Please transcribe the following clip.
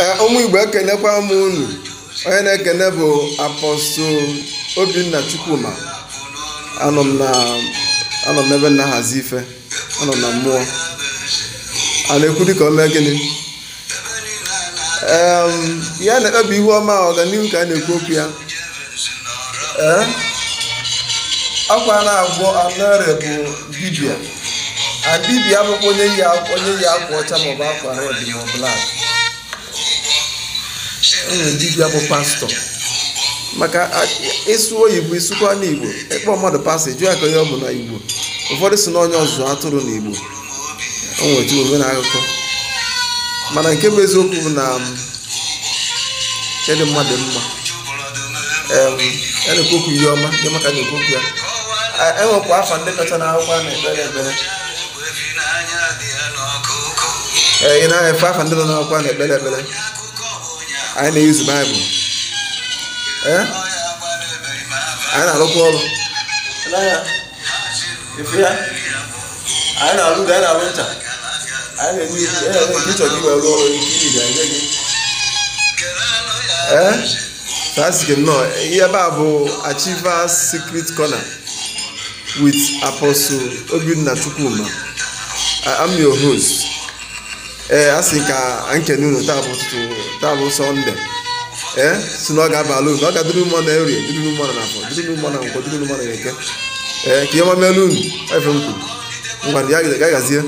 Eh, ụmụ igbo ekenekwa m unu onye na-ekene bụ apọstụl obinna chukwuma anọ m ebe na-ahazi ife anọ na mmụọ a na-ekwu ka omee gịnị ya na-ekpebi ihu ọma ọganihu ka a na-ekwu okwu ya eh? akwa na agwọ anọre bụ dibịa a dibịa abụkwa onye yi akwa ọcha maọbụ akwa red maọbụ blak unu dibịa bụ pastọ maka ịsụ oyibo isụkwa n'igbo ịkpọ mmadụ pastọ jụọ ya ka ihe ọ bụ n'Igbo. ụfọdụ si na onye ọzụzụ atụrụ na igbo o nwetụ omena akụkọ mana nke bụ eziokwu bụ na um, kedụ mmadụ mma ya e na-ekwokwu ihe ọma dị maka na-ekwokwu ya enwekwa afa ndị kacha na akwụkwọ na-ekpere ekpere ee ị na-efe afa ndị nọ n'akwụkwọ na-ekpere ekpere anyị na-eyuzu baịbụl eh? anyị na-arụkwa ọrụ anyị na-arụ anyị na-arụ ncha anyị na-eme nke ịchọ gị wee rụọ ọrụ ike iji ga gị ee tasịkị eh? nọ ihe ebe a bụ Achievers Secret Corner with Apostle Obinna Chukwuma I'm your host ee eh, a sị ka nkene unu taa bụ ụtụtụ taa bụ sọnde ee eh, si na ọ ga abalụ unu ọ ga-adịrị ụmụ na erie dịrị ụmụ na afọ dịrị mmanụ na nkwọ dịrị mmanụ na eke ee eh, ka ihe mamelu unu efe m kwuru ngwa ya gazie